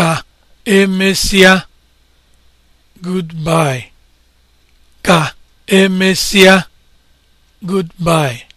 ka emesia, goodbye ka emesia, goodbye